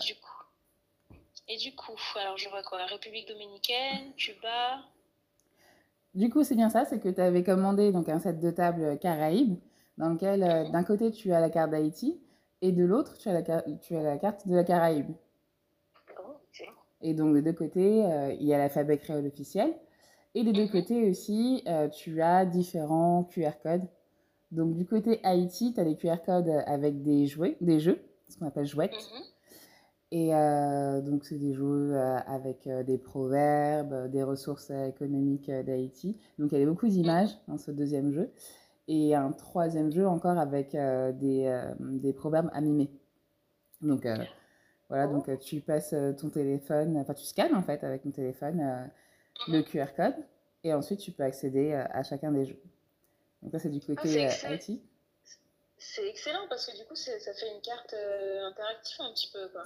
Du coup, et du coup, alors je vois quoi République dominicaine, Cuba. Du coup, c'est bien ça, c'est que tu avais commandé donc un set de table Caraïbes, dans lequel euh, mhm. d'un côté tu as la carte d'Haïti et de l'autre tu as la, tu as la carte de la Caraïbe. Oh, et donc de deux côtés, euh, il y a l'alphabet créole officiel. Et des deux mhm. côtés aussi, euh, tu as différents QR codes. Donc du côté Haïti, tu as des QR codes avec des jouets, des jeux, ce qu'on appelle jouettes. Mm -hmm. Et euh, donc, c'est des jeux euh, avec euh, des proverbes, des ressources économiques d'Haïti. Donc, il y avait beaucoup mmh. d'images dans ce deuxième jeu. Et un troisième jeu encore avec des, des proverbes à Donc, voilà, donc oh. tu passes ton téléphone, enfin tu scannes en fait avec ton téléphone euh, mmh le QR code et ensuite tu peux accéder à chacun des jeux. Donc ça c'est du ah, côté ah, euh, IT. C'est excellent parce que du coup ça fait une carte interactive un petit peu. Quoi.